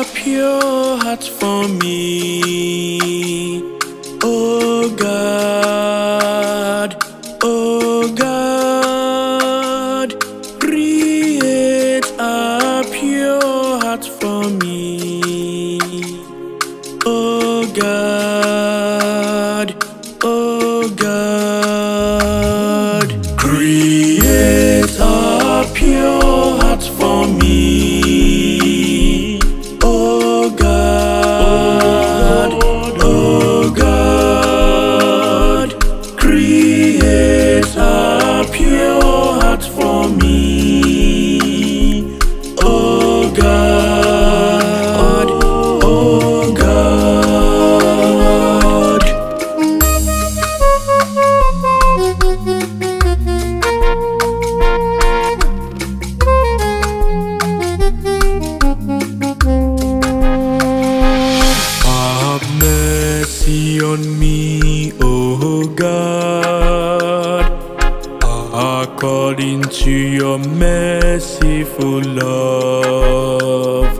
a pure heart for me. Oh God, oh God, create a pure heart for me. Oh God. on me, oh God, according to your merciful love,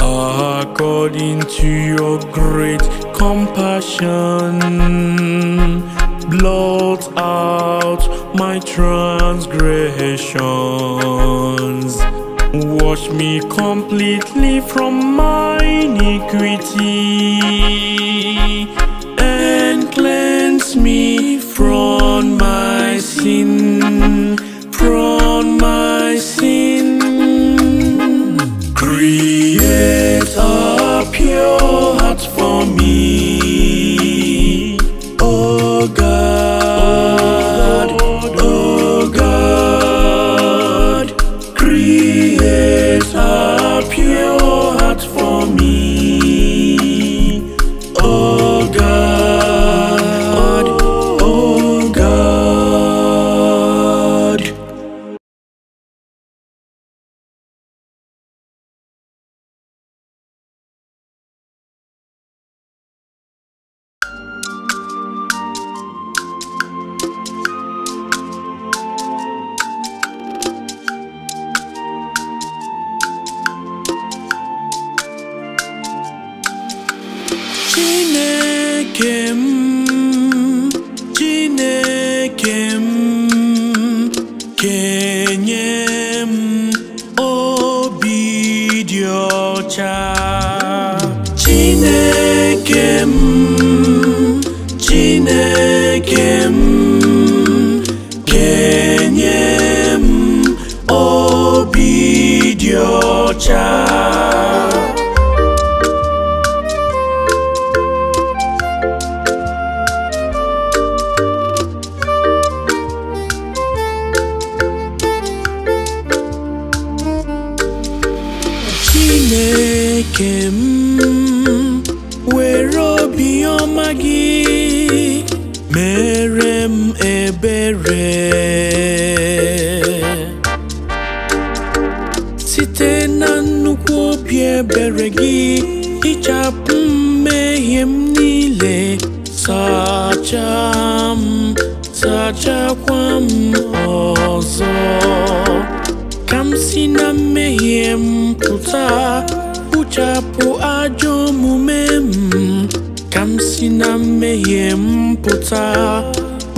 according to your great compassion. Blot out my transgressions. Wash me completely from my iniquity cleanse me from my sin, from my sin. Create a pure heart for me, oh God, oh God. Create a pure heart for me. Chineke m Chineke m kenye m obi dị ọcha Chineke m Chineke m site na nnukwu obi ebere gị hichapụ mmehie m niile sacha m sachakwa m ọzọ ka m si na mmehie m pụta kpuchapụ ajọ omume m ka m si na mmehie m pụta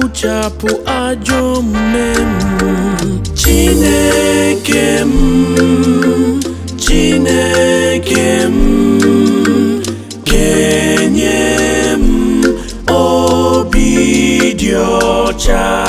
na ajọ omume m Chineke m mm, Chineke m mm, kenye m mm, obi dị ọcha